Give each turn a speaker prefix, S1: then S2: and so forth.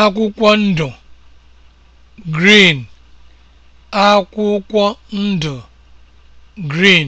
S1: akwụkwọ ndụ green akwụkwọ ndụ green